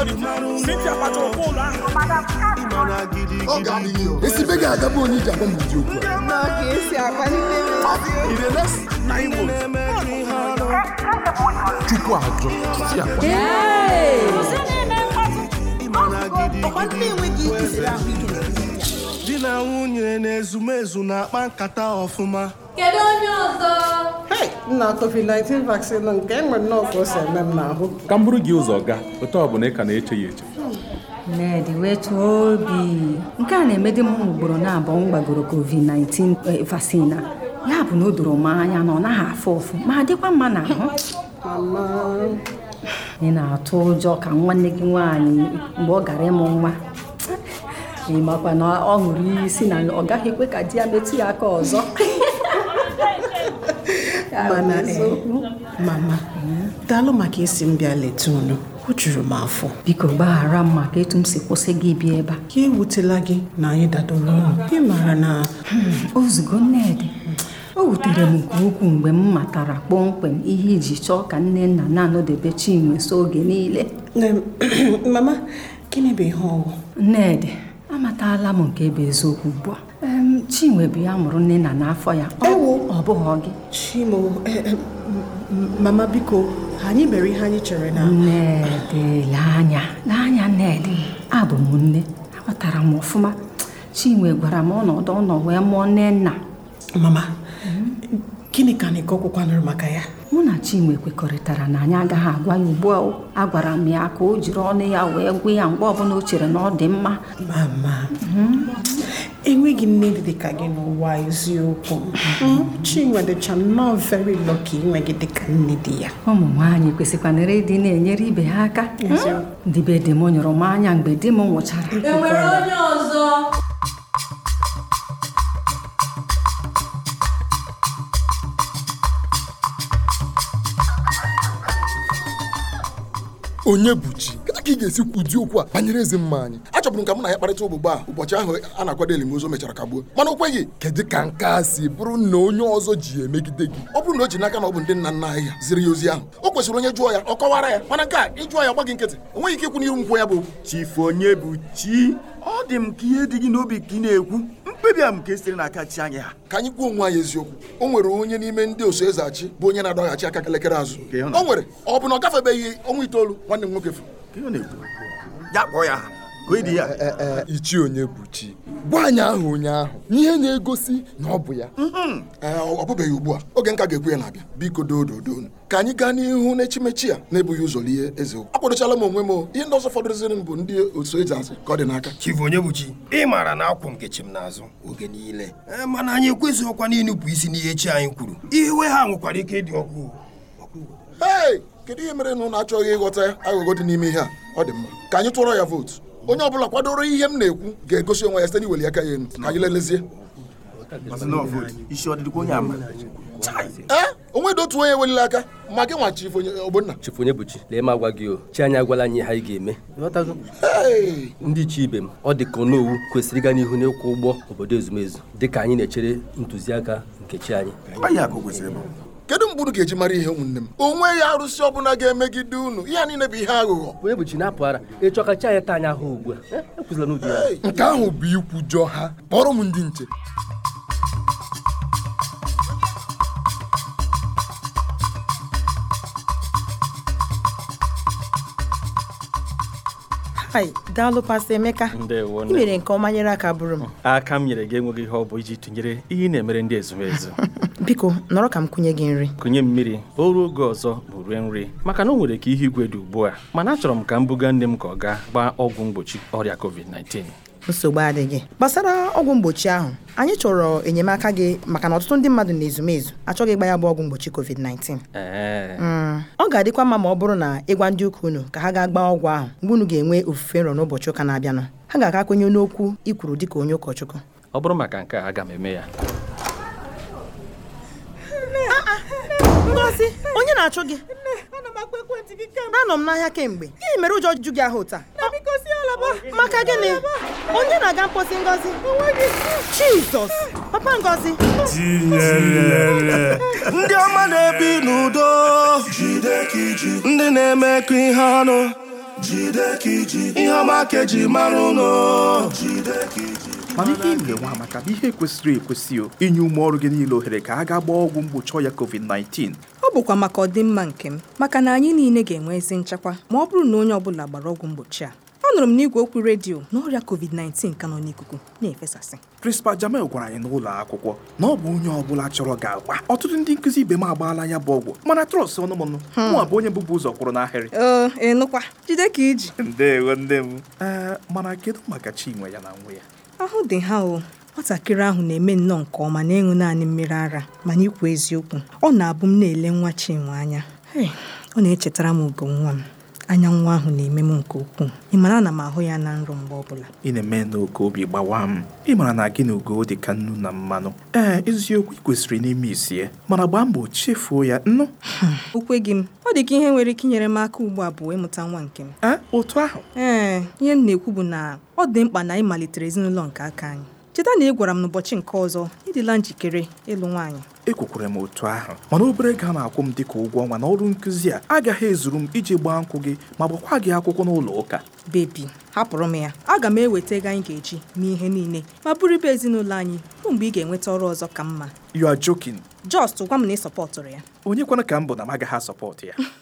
esi be ga-agabụ onye iji m ụdị okwu chukwu ọgwụ ọgwụ. di na nwunye na ezumezu na-akpa nkata ọfụma Kedu onye ọzọ? nna covid-19 vaccine nke enwere nọọsụ o si eme m n'ahụ ka m bụrụ gị ụzọ gaa otu ọ bụla ị ka na-eche ya eche Nnedi wetuo obi nke a na-emedi m ugboro na-abụọ m gbagoro covid-19 eh, vaccine a ya bụ na o doro m anya na ọ naghị afụ ụfụ ma dịkwa mma na-ahụ. ị na-atụ ụjọ ka nwanne gị nwaanyị mgbe ọ gara ịmụ nwa ị makwa na ọ ṅụrụ iyi si na ọ gaghị ekwe ka di ya metụ ya aka ọzọ mana mama eh, eh, daalụ maka isi m bịa leta unu o juru m afọ biko gbaghara m maka etu m si kwụsị gị bịa ebe a ka ewutela gị na anyị dadoro ụlọ ị mara na hmm, ozugbo nnedị o wutere m nke ukwuu mgbe m matara kpọmkwem ihe iji chọọ ka nne nna na-anọdebe chinwe so oge niile mama gịnị bụ ihe ọwụ nnedị amatala m nke bụ eziokwu ugbu a Chinwe bụ ya mụrụ nne na n'afọ ya ọ bụghị gị Chimo e, e, mama biko anyị mere ihe anyị chere na nnedele anya n'anya nnedi abụ m nne aghọtara m ọfụma Chinwe gwara m ọnọdụ ọ nọ wee mụọ nne nna mama gịnị ka anyị kọkwakwanụrụ maka ya mụ na Chinwe kwekọrịtara na anyị agaghị agwa ya ugbu a gwara m ya ka o jiri ọnụ ya wee gwa ya mgbe ọbụla o chere na ọ dị mma mama mhm. enweghị nne dị dịka gị n'ụwa eziokwu mm-hmm. Mm-hmm. Chinwe dịcha nnọọ very lucky inwe gị dịka nne dị ya ụmụ nwaanyị kwesịkwanịrị ịdị na-enyere ibe ha aka mm-hmm. ndị dị m nyụrụ m anya mgbe di m nwụchara enwere e onye ọzọ onye bụ chi ka ị ga-esi kwudi okwu a banyere ezi mma anyị achọbụrụ ka mụ na ya kparịta ogbugbo a ụbọchị ahụ a na-akwado elimozu mechara kagbuo mana o kedu ka nke a si bụrụ na onye ọzọ ji emegide gị ọ bụrụ na o ji n'aka na ọ bụ ndị nna nna anyị ya ziri ya ozi ahụ o kwesịrị onye jụọ ya ọ kọwara ya mana nke a ịjụọ ya gbaghị nkịtị enweghị ike ikwu n'iru nkwụ ya bụ chifu onye bụ chi ọ dị m ka ihe dị gị n'obi ka ị na-ekwu mkpebi a m ka esiri n'aka chi anyị ha ka anyị kwuo onwe anyị eziokwu o nwere onye n'ime ndị oso eze achị bụ onye na-adọghachi aka kelekere azụ o nwere ọ bụ na ọ gafebeghị ọnwa itoolu nwanne m nwoke furu ya kpọọ ya ichi onye bụ chi gwa anyị ahụ ụnyaahụ ihe na-egosi na ọ bụ ya mm-hmm. ọ bụbeghị ugbu a oge nka ga-ekwu ya na-abịa biko doododonu ka anyị gaa n'ihu n'echimechi a na-ebughị ụzọ ihe eze okwu akwadochala m onwe m ihe ndị ọzọ fọdụrụziri m bụ ndị otu eze azụ ka ọ dị n'aka chifu onye bụ chi ị maara na akwụ nke m n'azụ oge niile e, mana anyị ekwesịghịkwa n'ịnụpụ isi n'ihe chi anyị kwuru iwe ha nwekwara ike ịdị ọkụ kedu ihe mere na ụnụ achọghị ịghọta aghụghọ dị n'ime ihe a ọ dị mma ka anyị tụọrọ ya vootu onye ọ bụla kwadoro ihe m na-ekwu ga-egosi onwe ya site n'iweli aka ya ka anyị lelezie eh, onwe dị otu onye ewelila aka ma gị nwa chifu ogbonna chifu bụchi lee m agwa gị o chi anyị agwala anyị ha anyị ga-eme ndị chi ibe m ọ dị ka onowu kwesịrị ịga n'ihu n'ịkwụ ụgbọ obodo ezumezu dị ka anyị na-echere ntụziaka nke chi anyị kedu mgbe unu ga-eji mara ihe ụmụnne m O nweghị arụsị ọbụla ga-emegide unu ihe niile bụ ihe aghụghọ onye bụ chi na-apụ ara ịchọ ka chi anyị taa anya ha ugbu a e, e ya. nke ahụ bụ ikwujọ ha kpọrọ m ndị nche ai daalụ pasta Emeka ị mere nke ọma nyere aka bụrụ m aka m nyere gị enweghị ihe ọ bụ iji tụnyere ihe ị na-emere ndị ezumezu biko nọrọ ka m kụnye gị nri kụnye mmiri o ruo oge ọzọ bụ rie nri maka na o nwere ka ihe igwe dị ugbu a mana achọrọ m ka m buga nne m ka ọ gaa gbaa ọgwụ mgbochi ọrịa covid-19 nsogbu adịghị gbasara ọgwụ mgbochi ahụ anyị chọrọ enyemaka gị maka na ọtụtụ ndị mmadụ na-ezumezu achọghị ịgba ya bụ ọgwụ mgbochi covid-19 mm. ọ ga-adịkwa mma ma ọ bụrụ na ịgwa ndị ụka unu ka ha gaa gbaa ọgwụ ahụ mgbe unu ga-enwe ofufe nrọ n'ụbọchị ụka na-abịanụ ha ga-aka kwenye n'okwu ikwuru dịka onye ụkọchukwu ọ bụrụ maka nke a aga m eme ya Ngozi onye na-achụ gị anọ m n'ahịa kemgbe gịnị mere ụjọ ju gị ahụ taa maka gịnị onye na-aga mposi Ngozi Jizọs papa Ngozi ndị ọma na-ebi n'udo ndị na-eme ka ihe ọnụ ihe ọma ka eji mara ụnụ mana ihe ị ga-enwe amaka bụ ihe kwesịrị ekwesị inye ume ọrụ gị niile ohere ka a ga gbaa ọgwụ mgbochi ọya covid-19 bụkwa maka ọdịmma nke m maka na anyị niile ga-enwe ezi nchekwa ma ọ bụrụ na onye ọbụla gbara ọgwụ mgbochi a anụrụ m n'igwe okwu redio na ọrịa covid-19 ka nọ n'ikuku na-efesasị Principal Jamel gwara anyị n'ụlọ akwụkwọ na ọ bụ onye ọ bụla chọrọ ga-agwa ọtụtụ ndị nkụzi ibe m agbaala ya bụ ọgwụ mana trọs ọnụmọnụ hmm. nwa bụ onye bụbu ụzọ kwụrụ n'ahịrị ịnụkwa jide ka iji ndewo nne m mana kedu maka Chinwe ya na nwe ya ahụ dị ha o Nwatakịrị ahụ na-eme nnọọ nke ọma na n'ịṅụ naanị mmiri ara mana ikwu eziokwu, ọ na-abụ m na-ele nwa Chinwe anya, hei, ọ na-echetara m ugo nwa m. Anya nwa ahụ na-eme m nke ukwuu. Ị mara na m ahụ ya na nrọ mgbe ọbụla ị na-eme na oge obi gbawa m ị mara na gị na ugo dị ka nnu na mmanụ ee eziokwu ị kwesịrị n'ime isi ya mana gbaa mbọ chefuo ya nnu hmm, gị m ọ dị ka ihe nwere ike inyere m aka ugbu a bụ ịmụta nwa nke m otu ahụ ee ihe m na-ekwu bụ na ọ dị mkpa na anyị malitere ezinụlọ nke aka anyị cheta na ị gwara m n'ụbọchị nke ọzọ ịdịla njikere ịlụ nwaanyị ekwekwere m otu ahụ mana obere ga a na-akwụ m dịka ụgwọ ọnwa na ọrụ nkụzi a agaghị ezuru m iji gbaa nkwụ gị ma gbakwa gị akwụkwọ n'ụlọ ụka bebi hapụrụ m ya aga m eweta ego anyị ga-eji mee ihe niile ma bụrụ ibe ezinụlọ anyị bụ mgbe ị ga-enweta ọrụ ọzọ ka mma you are joking just gwa m na ị sọpọtụrụ ya onye kwana ka m bụ na m agaghị asọpọtụ ya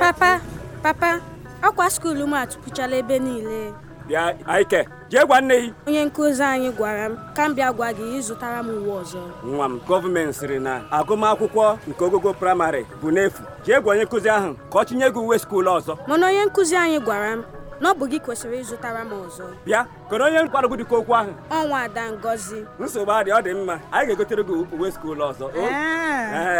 papa papa ọkwa skuulu m atụpụchala ebe niile bịa aike jee gwa nne gị onye nkuzi anyị gwara m ka m bịa gwa gị ịzụtara m uwe ọzọ nwa m gọọmenti sịrị na agụmakwụkwọ nke ogogo praịmarị bụ n'efu jee gwa onye nkụzi ahụ ka ọ tinye gị uwe skuulu ọzọ mana onye nkụzi anyị gwara m na ọ bụ gị kwesịrị ịzụtara m ọzọ bịa kọrọ onye nkwara gị dịka okwu ahụ ọnwa ada ngozi nsogbu adị ọ dị mma anyị ga-egotere gị uwe skuul ọzọ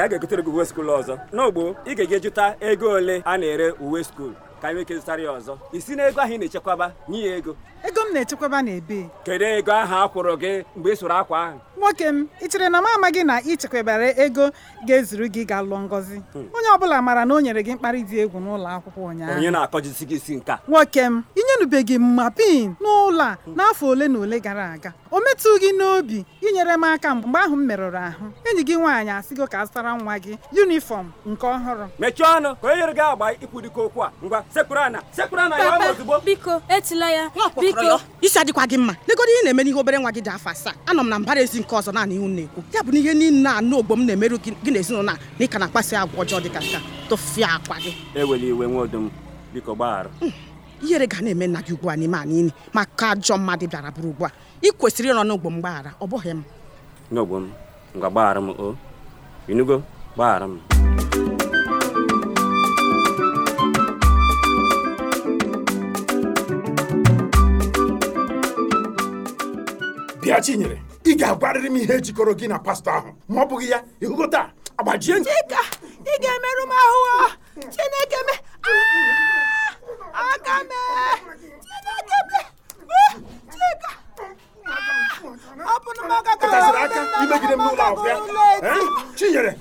a ga-egotere gị uwe skuul ọzọ n'ogbo ị ga-eje jụta ego ole a na-ere uwe skuul ka anyị nwee ike zụtara ya ọzọ isi na ego ahụ ị na-echekwaba nye ya ego ego m na-echekwaba n'ebe kedu ego ahụ a kwụrụ gị mgbe ị sụrụ akwa ahụ nwoke m ị chere na m amaghị na ị ego ga-ezuru gị ga lụọ ngọzi hmm. onye ọbụla maara na o nyere gị mkparị dị egwu n'ụlọ akwụkwọ ụnyaahụ onye na isi nka nwoke m inyenubeghị m ma pin n'ụlọ a n'afọ ole na ole gara aga o metụ gị n'obi inyere m aka mgbe ahụ m merụrụ ahụ enyi gị nwaanyị asịgo ka azụtara nwa gị yunifọm nke ọhụrụ mechie ọnụ ka o gị agba okwu a ngwa ya ozugbo biko etila ya biko isi adịkwa gị mma legoro ihe na-eme n'ihe obere nwa gị dị afọ asaa anọ m na mbara ezi nke ọzọ naanị ihu na-ekwu ya bụ na ihe niile anụ ogbo m na-emerụ gị na ezinụlọ na ịka na akpasị agwa ọjọọ dịka ka a tụfịa akwa gị iwe biko hmm. ihere ga na-eme nna gị ugbu a n'ime a niile maka ajọ mmadụ bịara bụrụ ugbu a ị kwesịrị ịnọ n'ogbo m gbaghara ọ bụghị m n'ogbo m ngwa gbaghara m o inugo gbaghara m ya chinyere ị ga-agwarịrị m ihe jikọrọ gị na pastọ ahụ ma ọ bụghị ya ịhụgo taa agbajie chika ị ga-emerụ m ahụ chineke me ah! aka me chineke me ah! chika ah! ọ bụ na maka ka ọ aka imegide m n'ụlọ akwụkwọ ya chinyere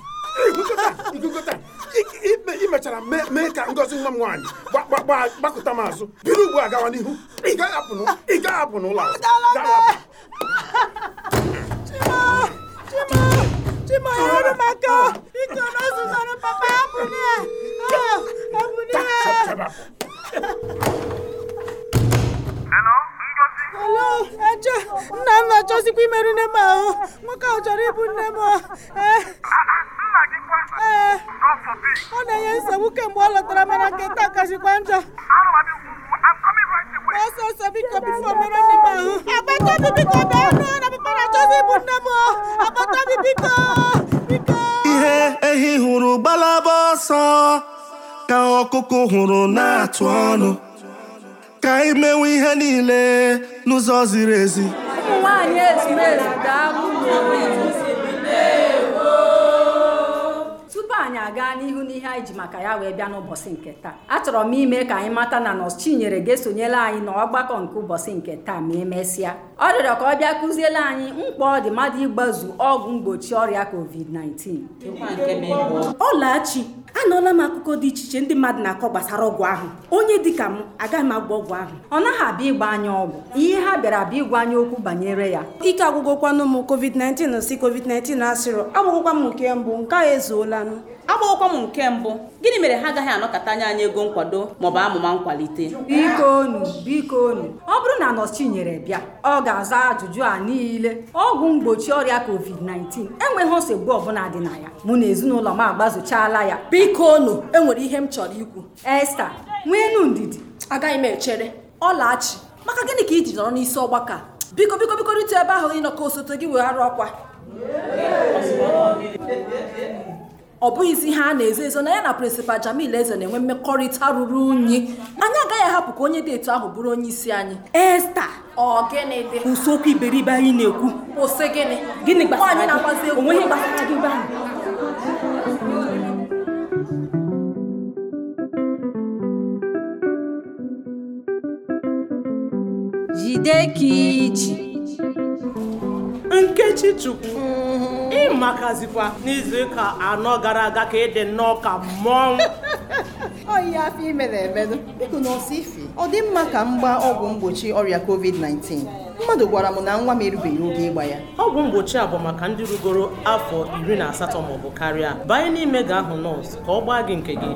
ị mee ka ngozi nwa m nwaanyị gbakọta m azụ bido ugbu a gawa n'ihu ị gaghị apụ n'ụlọ Chima! Chima! Chima, ya m maka Ike na ọzụzara papa ya pụrụ ya! Ha! Ha! Ha! Eche, nna Ha! Ha! Ha! Ha! nne m ahụ. Ha! ahụ chọrọ ịbụ nne m. Ee, ọ na-enye Ha! kemgbe ọ lọtara mana nke taa Ha! njọ. ọsọ biko bifo mere ahụ agbata biko bụ biko ihe ehi hụrụ gbalaba ọsọ ka ọkụkụ hụrụ na-atụ ọnụ ka anyị ihe niile n'ụzọ ziri ezi ụmụ ezumezu anyị aga n'ihu n'ihe anyị ji maka ya wee bịa n'ụbọchị nke taa achọrọ m ime ka anyị mata na nọs Chinyere ga-esonyela anyị n'ọgbakọ nke ụbọchị nke taa ma emesịa ọ rịọrọ ka ọ bịa kụziele anyị mkpa ọ dị mmadụ ịgbazu ọgwụ mgbochi ọrịa covid-19 ọlachi anụọla m akụkọ dị iche iche ndị mmadụ na-akọ gbasara ọgwụ ahụ onye dịka m agaghị m agwụ ọgwụ ahụ ọ naghị abịa ịgba anya ọgwụ ihe ha bịara abịa ịgwa anya okwu banyere ya ike agwụgwọkwanụ m covid-19 si covid-19 asịrọ agwụgwọkwa m nke mbụ nke a ezuolanụ agbawokwa m nke mbụ gịnị mere ha agaghị anọkọta anya anyị ego nkwado maọbụ amụma nkwalite bikonu biko ọ bụrụ na nọọsụ nyere bịa ọ ga-aza ajụjụ a niile ọgwụ mgbochi ọrịa covid-19 enweghị nsogbu ọbụla dị na ya mụ na ezinụlọ m agbazochala ya bikonu enwere ihe m chọrọ ikwu Esther nweenu ndidi agaghị m echere ọlachi maka gịnị ka iji nọrọ n'isi ọgbakọ a biko biko biko rite ebe ahụ ịnọkọ osote gị weghara ọkwa ọ bụghịzi ihe a na-ezo ezo na ya na prịnsịpal Jamil Eze na-enwe mmekọrịta ruru unyi anyị agaghị ahapụ ka onye dị etu ahụ bụrụ onye isi anyị Esta ọ gịnị dị ụsokwu iberibe anyị na-ekwu kwụsị gịnị gịnị gbasara gị onwe ihe gbasara gị ebe jide ka iji nkechi chukwu ịmakazikwa n'izu ụka anọ gara aga ka ị dị nnọọ ka mmọnwụ oyi afọ imere emedo biko na ife ọ dị mma ka m gbaa ọgwụ mgbochi ọrịa covid-19 mmadụ gwara m na nwa m erubeghị oge ịgba ya ọgwụ mgbochi a bụ maka ndị rugoro afọ iri na asatọ maọbụ karịa banye n'ime ga ahụ nọọsụ ka ọ gbaa gị nke gị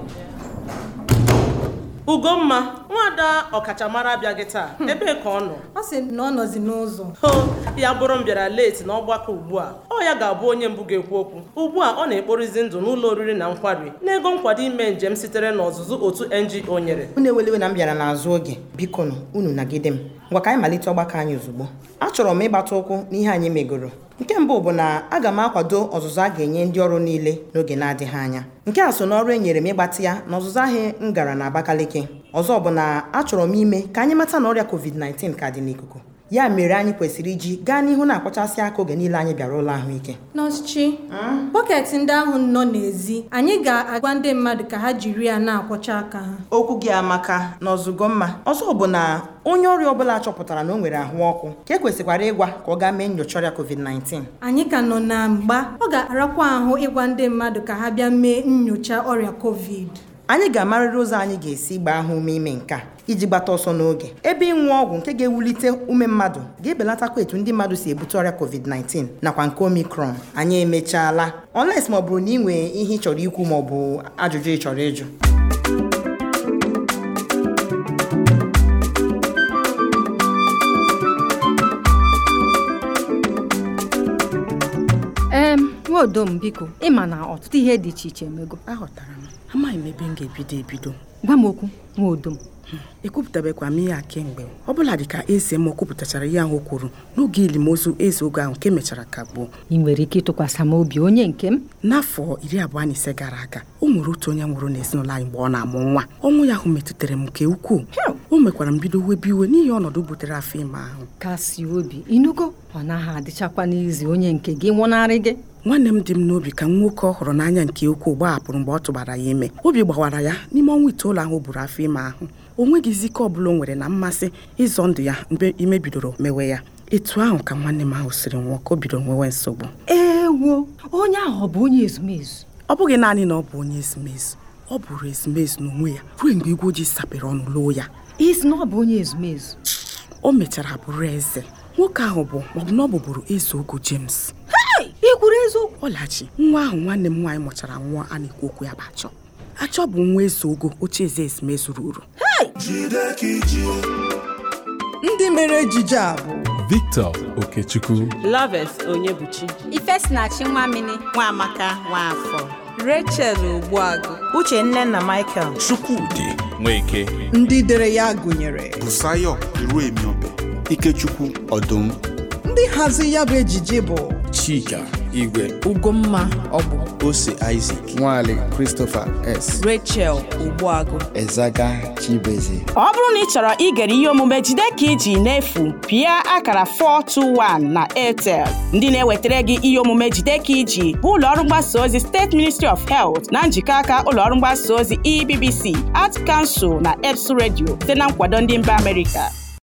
Ugomma nwada ọkachamara abịaghị taa hmm. ebee ka ọ nọ ọ sị na ọ nọzi n'ụzọ ho ya bụrụ m bịara leti n'ọgbakọ ugbu a ọ ya ga-abụ onye mbụ ga-ekwu okwu ugbu a ọ na-ekporizi ndụ n'ụlọ oriri na nkwari n'ego nkwado ime njem sitere n'ọzụzụ otu NGO nyere unu ewelewe na m bịara n'azụ oge biko unu nagide m ngwa ka anyị malite ọgbakọ anyị ozugbo achọrọ m ịgbata ụkwụ n'ihe anyị megoro nke mbụ bụ na aga m akwado ọzụzụ a ga-enye ndị ọrụ niile n'oge na-adịghị anya nke a so n'ọrụ e nyere m ịgbatị ya na ọzụzụ ahụ m gara na Abakaliki ọzọ bụ na achọrọ m ime ka anyị mata na ọrịa COVID-19 ka dị n'ikuku ya mere anyị kwesịrị iji gaa n'ihu na-akpọchasị aka oge niile anyị bịara ụlọ ahụike nọọsụchi bọket ndị ahụ nọ n'ezi anyị ga-agwa ndị mmadụ ka ha jiri ya na-akwọcha aka ha okwu gị amaka na ọzụgo mma ọzọ bụ na onye ọrịa ọbụla chọpụtara na o nwere ahụ ọkụ ka e kwesịkwara ịgwa ka ọ gaa mee nyocha ọrịa covid-19 anyị ka nọ na mgba ọ ga-arakwa ahụ ịgwa ndị mmadụ ka ha bịa mee nyocha ọrịa covid anyị ga-amarịrị ụzọ anyị ga-esi gbaa ha ume ime nke a iji gbata ọsọ n'oge ebe ịnwụ ọgwụ nke ga-ewulite ume mmadụ ga-ebelatakwa etu ndị mmadụ si ebute ọrịa covid-19 nakwa nke omicron anyị emechaala unless ma ọ bụrụ na ị nwee ihe ị chọrọ ikwu maọbụ ajụjụ ị chọrọ ịjụ nwa m biko ịma na ọtụtụ ihe dị iche iche emego aghọtara m amaghị m ebe m ga-ebido ebido gwa m okwu nwa m ekwupụtabekwa hmm, m ihe a kemgbe ọ bụla dị ka eze m kwupụtachara ihe ahụ kwuru n'oge elimozu eze oge ahụ nke mechara kagbuo ị nwere ike ịtụkwasị m obi onye nke m n'afọ iri abụọ na ise gara aga o nwere otu onye nwụrụ n'ezinụlọ anyị mgbe ọ na-amụ nwa ọnwụ ya ahụ metụtara m nke ukwuu o mekwara m bido webi iwe n'ihi ọnọdụ butere afọ ime ahụ kasị obi inugo ọ naghị adịchakwa n'izi onye nke gị nwụnarị gị nwanne m dị m n'obi ka nwoke ọhụrụ hụrụ n'anya nke ukwuu apụrụ mgbe ọ tụbara ya ime obi gbawara ya n'ime ọnwa itoolu ahụ buru afọ ime ahụ o nweghịzi izike ọ bụla o nwere na mmasị ịzọ ndụ ya mgbe ime bidoro mewe ya etu ahụ ka nwanne m ahụ siri nwụọ ka o bidoro nwewe nsogbu ewo onye ahụ ọ bụ onye ezumezu ọ bụghị naanị na ọ bụ onye ezumezu ọ bụrụ ezumezu n'onwe ya ruo mgbe igwe ojii sapere ọnụ loo ya isi na bụ onye ezumezu o mechara bụrụ eze nwoke ahụ bụ maọbụ na bụbụrụ eze ogo James ị kwuru eziokwu ọlachi nwa ahụ nwanne m nwaanyị mụchara nwa a na-ekwu okwu ya bụ achọ achọ bụ nwa eze ogo oche eze ezumezu ruru ndị mere ejije a bụ Victor Okechukwu Loves Onyebuchi Ifesinachi Nwamini Nwaamaka Nwaafọ Rachel Uche, nne na Michael Chukwudi Nweke ndị dere ya gụnyere Busayo Ikechukwu Ọdụm ndị hazi ya bụ ejiji bụ Chika Igwe Ugomma bụ Ose Isaac Nwale Christopher S Rachel Ogbuagụ Ezaga Chibeze ọ bụrụ na ị chọrọ igere ihe omume jide ka iji n'efu pịa akara 421 na Airtel ndị na-ewetara gị ihe omume jide ka iji bụ ụlọọrụ mgbasa ozi steeti ministry of health na njikọ aka ụlọọrụ mgbasa ozi ebbc at kansụl na eps redio site na nkwado ndị mba amerịka